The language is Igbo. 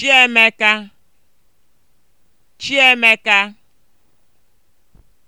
Chiemeka Chiemeka